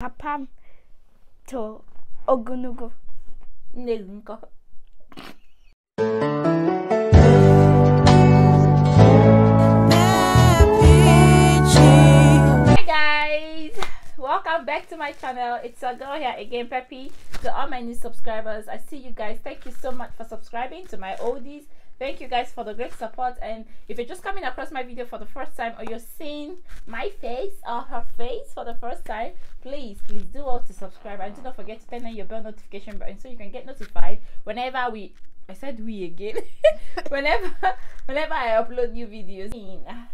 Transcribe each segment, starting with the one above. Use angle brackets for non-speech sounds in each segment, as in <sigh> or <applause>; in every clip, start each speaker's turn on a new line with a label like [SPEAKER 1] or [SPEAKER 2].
[SPEAKER 1] 아팜 guys welcome back to my channel it's a girl here again Peppy to all my new subscribers I see you guys thank you so much for subscribing to my oldies thank you guys for the great support and if you're just coming across my video for the first time or you're seeing my face or her face for the first time please please do all to subscribe and do not forget to turn on your bell notification button so you can get notified whenever we I said we again. <laughs> whenever, whenever I upload new videos.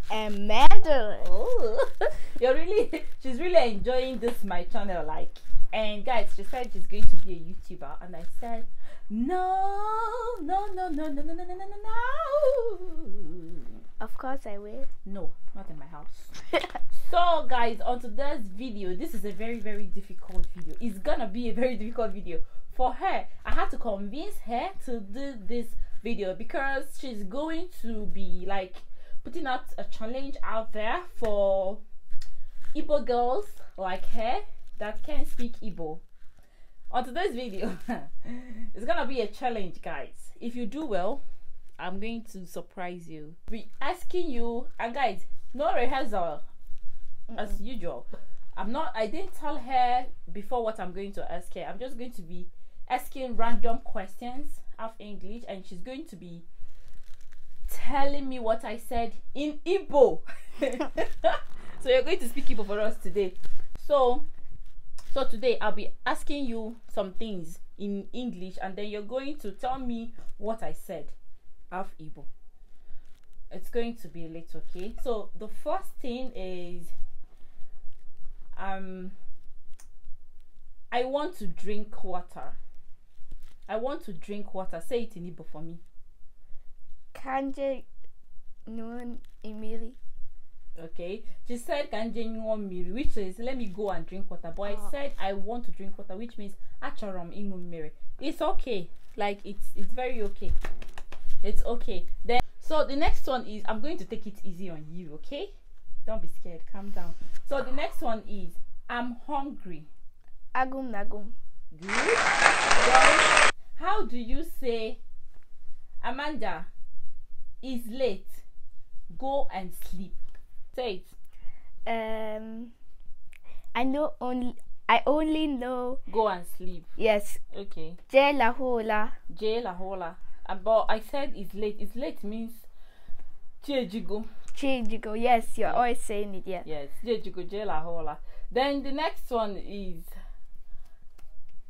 [SPEAKER 1] Amanda. Oh, <laughs> you're really. She's really enjoying this my channel, like. And guys, she said she's going to be a YouTuber, and I said no, no, no, no, no, no, no, no, no, no. Of course I will. No, not in my house. <laughs> so guys, on today's video, this is a very, very difficult video. It's gonna be a very difficult video. For her, I had to convince her to do this video because she's going to be like putting out a challenge out there for Igbo girls like her that can speak Igbo on today's video <laughs> it's gonna be a challenge guys if you do well i'm going to surprise you we asking you and guys no rehearsal mm -mm. as usual i'm not i didn't tell her before what i'm going to ask her i'm just going to be asking random questions of english and she's going to be telling me what i said in Ibo. <laughs> so you're going to speak Ibo for us today so so today I'll be asking you some things in English and then you're going to tell me what I said. Half Igbo. It's going to be a little okay. So the first thing is um I want to drink water. I want to drink water. Say it in Igbo for me. Kanje non emiri okay she said "Can nyuo which is let me go and drink water but oh. i ah. said i want to drink water which means acharom ịṅụ it's okay like it's it's very okay it's okay then so the next one is i'm going to take it easy on you okay don't be scared calm down so the next one is i'm hungry agum nagum good then, how do you say amanda is late go and sleep it. Um, I know only. I only know. Go and sleep. Yes. Okay. Jela hola. Jela hola. Uh, but I said it's late. It's late means. Chejigo. Chejigo. Yes, you're always saying it. Yeah. Yes. Chejigo. Jela hola. Then the next one is.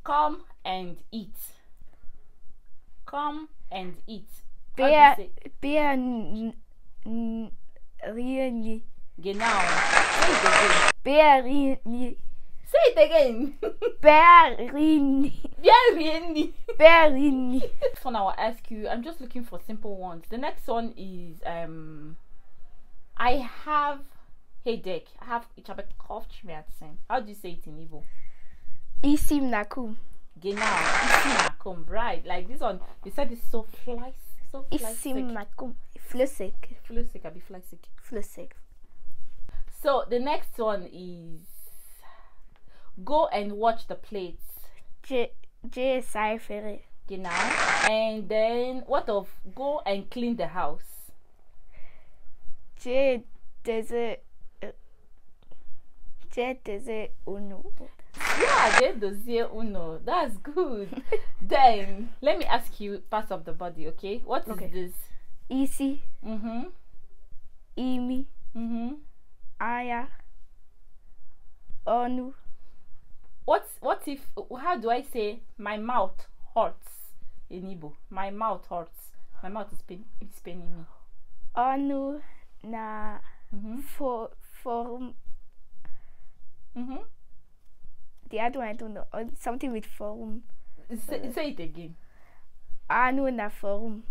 [SPEAKER 1] Come and eat. Come and eat. bear, beer, really. Genau. Berini. Say it again. Berini. Berini. Berini. This now I will ask you. I'm just looking for simple ones. The next one is um, I have headache. I have ich the same. How do you say it in Igbo? Isim nakum. Genau. Isim nakum. Right. Like this one. You said it's so fly. So fly. Isim nakum. Flüssig. Flüssig. be flüssig. Flüssig. So the next one is go and watch the plates. J JSI Ferry. You know? And then what of go and clean the house? J it. Uh, J it uno. Yeah, J it uno. That's good. <laughs> then let me ask you parts of the body, okay? What okay. is this? Easy. Mm-hmm. Imi. Mm-hmm higher onu what what if how do i say my mouth hurts in igbo my mouth hurts my mouth is pain it's paining me onu na mm -hmm. for for mm -hmm. the other one i don't know something with forum say, say it again onu na forum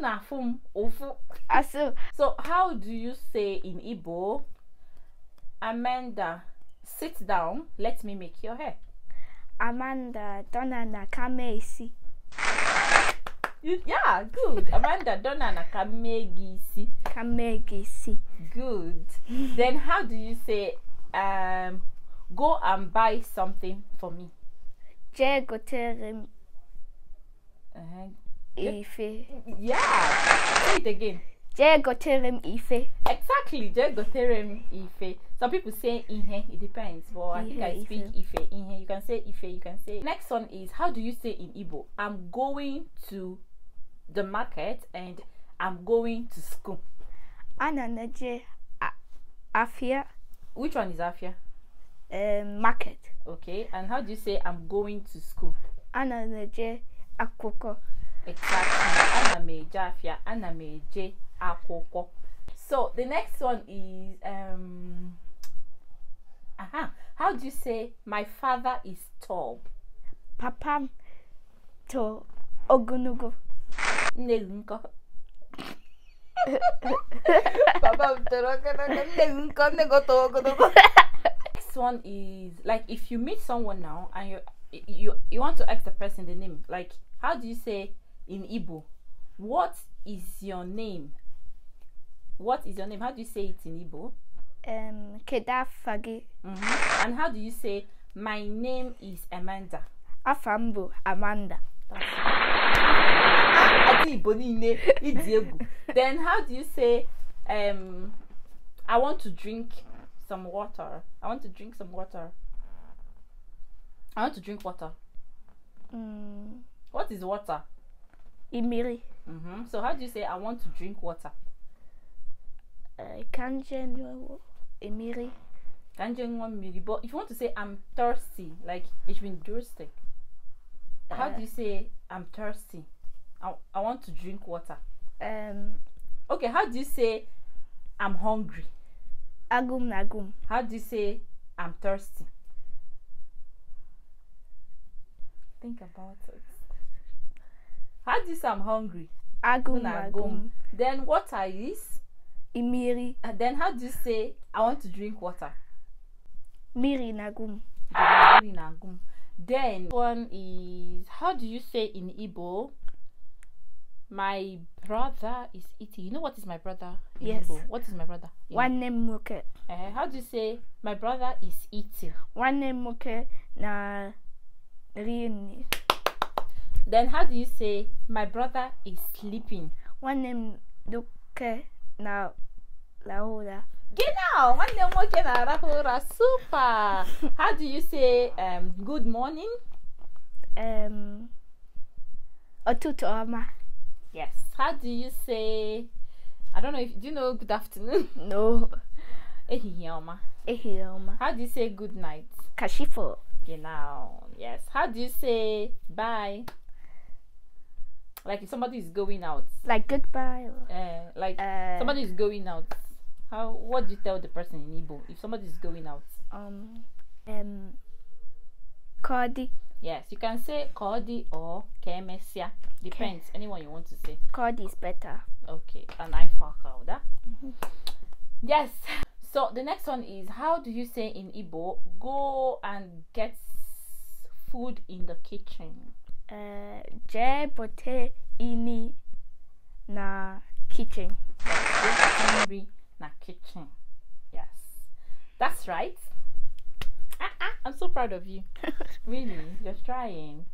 [SPEAKER 1] na Asụ. So how do you say in Igbo, Amanda, sit down, let me make your hair? Amanda, dona na kame isi. You, yeah, good. Amanda, dona na kame isi. Kame Good. then how do you say, um, go and buy something for me? Je gotere Uh -huh. Ife. Yeah. Say it again. Jegoterem Ife. Exactly. Jegoterem Ife. Some people say Ihe. It depends. But I think I speak Ife. Ihe. You can say Ife. You can say. Next one is how do you say in Igbo? I'm going to the market and I'm going to school. Ananaje Afia. Which one is Afia? Eh, market. Okay. And how do you say I'm going to school? Ananaje Akoko exactly ana m eje afịa ana akwụkwọ so the next one is um, aha how do you say my father is tall papa to ogologo nne <laughs> papa m toro ogologo nne gị nkọ nne next one is like if you meet someone now and you you you want to ask the person the name like how do you say in Igbo. What is your name? What is your name? How do you say it in Igbo? Um, Kedafagi. Mm -hmm. And how do you say, my name is Amanda? Afambo Amanda. Ah, then how do you say, um, I want to drink some water. I want to drink some water. I want to drink water. Mm. What is water? Imiri. Mm-hmm. So how do you say I want to drink water? Uh, eh, kanjenwa Imiri. Kanjenwa Miri. But if you want to say I'm thirsty, like it's been thirsty. How uh, do eh. you say I'm thirsty? I, I want to drink water. Um. Okay. How do you say I'm hungry? Agum nagum. How do you say I'm thirsty? Think about it. How this I'm hungry? Agum, agum. agum. Then water is? Imiri. And then how do you say I want to drink water? Miri nagum. Miri nagum. Then one is how do you say in Igbo? My brother is eating. You know what is my brother? In yes. Igbo? What is my brother? one name moke. Uh, how do you say my brother is eating? One name moke na rini. Then how do you say my brother is sleeping? One name duka na lahura. Genau, name muke na lahura. Super. how do you say um, good morning? Um, otutu ama. Yes. How do you say? I don't know if do you know good afternoon. <laughs> No. Ehihie ọma. How do you say good night? Kashifo. Genau. Yes. How do you say bye? like if somebody is going out like goodbye or, uh, like uh, somebody is going out how what do you tell the person in Igbo if somebody is going out um um Kodi. yes you can say Kodi or kemesia depends anyone you want to say Kodi is better okay and I fakauda out. Ah? Mm-hmm. yes <laughs> so the next one is how do you say in Igbo go and get food in the kitchen Je bote ini na kitchen. na kitchen. Yes, that's right. Ah, ah, I'm so proud of you. <laughs> really, you're trying.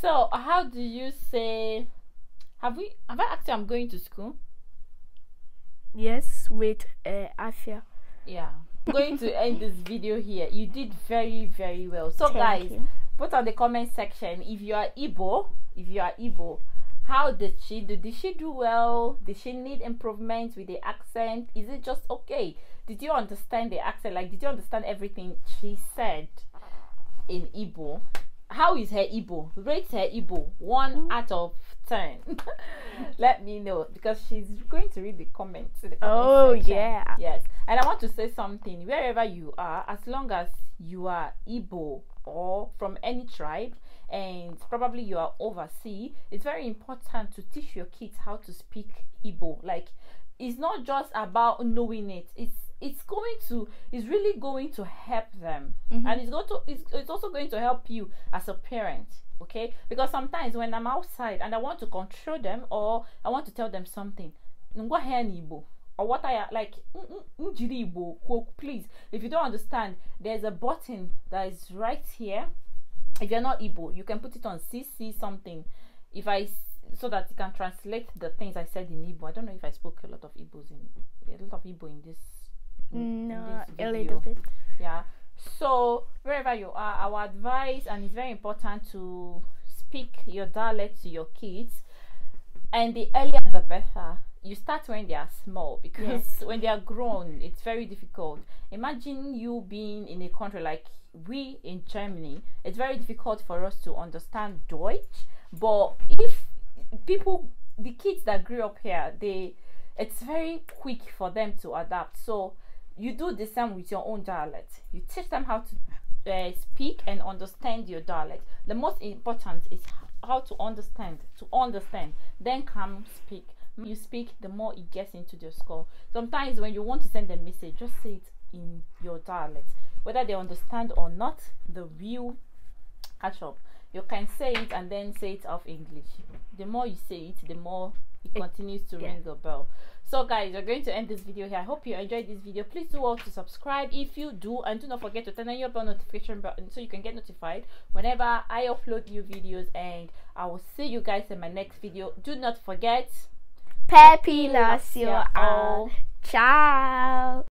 [SPEAKER 1] So, how do you say? Have we? Have I asked you? I'm going to school. Yes, with uh, Afia. Yeah. I'm going to end this video here. You did very, very well. So, Thank guys. You put on the comment section if you are Igbo, if you are Igbo, how did she do? Did she do well? Did she need improvement with the accent? Is it just okay? Did you understand the accent? Like, did you understand everything she said in Igbo? How is her Igbo? Rate her Igbo one mm-hmm. out of 10 <laughs> let me know because she's going to read the comments, the oh section. yeah yes and i want to say something wherever you are as long as you are Igbo or from any tribe and probably you are overseas, it's very important to teach your kids how to speak Igbo. Like it's not just about knowing it. It's it's going to it's really going to help them mm -hmm. and it's going to it's, it's also going to help you as a parent okay because sometimes when i'm outside and i want to control them or i want to tell them something ngwa hen igbo or what I like please if you don't understand there's a button that is right here if you're not Igbo you can put it on CC something if I so that you can translate the things I said in Igbo I don't know if I spoke a lot of Igbos in a lot of Igbo in this mm, no this a little bit yeah so wherever you are our advice and it's very important to speak your dialect to your kids and the earlier the better you start when they are small because yes. when they are grown, it's very difficult. Imagine you being in a country like we in Germany, it's very difficult for us to understand Deutsch. But if people, the kids that grew up here, they it's very quick for them to adapt. So you do the same with your own dialect. You teach them how to uh, speak and understand your dialect. The most important is how to understand. To understand, then come speak you speak, the more it gets into their skull. Sometimes when you want to send a message, just say it in your dialect. Whether they understand or not, the view catch up. You can say it and then say it off English. The more you say it, the more it, it continues to yeah. ring the bell. So guys, we're going to end this video here. I hope you enjoyed this video. Please do also subscribe if you do. And do not forget to turn on your bell notification button so you can get notified whenever I upload new videos. And I will see you guys in my next video. Do not forget Pepi loves you all. Ciao.